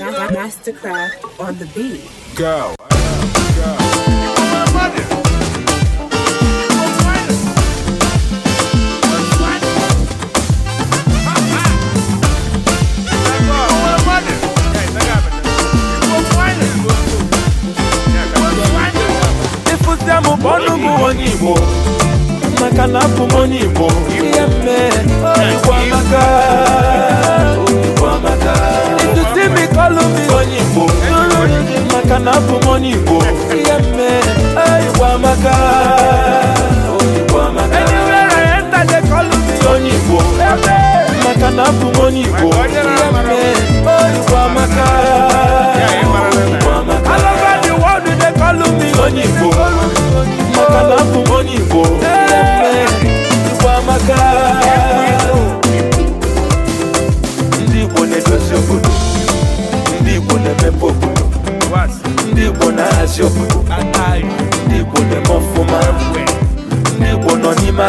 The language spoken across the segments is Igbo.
Mastercraft on the beat. Go. igbo maka na abụ m onye igbo maka anywhere I enter they call onye Igbo maka na onye Igbo the world they call me onye Igbo maka na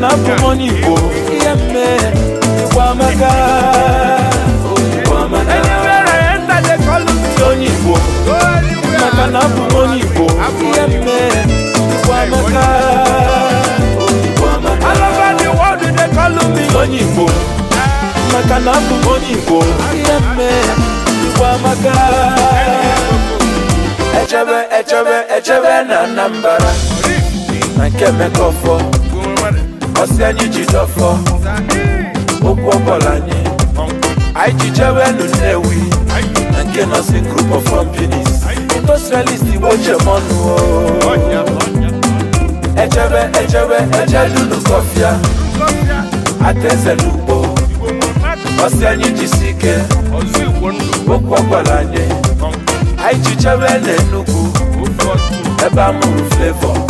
na abụ m onye Igbo ihe mme Igbo amaka onye Igbo maka na abụ onye Igbo ihe mme Igbo amaka onye Igbo maka na abụ onye Igbo ihe mme Igbo amaka echebe echebe echebe na Anambra na nke Mekọfọ ọsị anyị ji dọfọ okwu ọbọla anyị anyị ji jewelu nnewi na nke si group of companies industrialist igbo jemọnụ echebe echebe ejedulu kọfịa atezelu ugbo ọsị anyị jisi ike okwu ọbọla anyị anyị ji jewelu enugwu ebe a mụrụ flevọ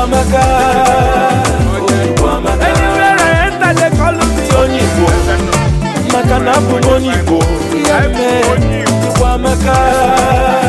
Amaka. Anywhere Maka na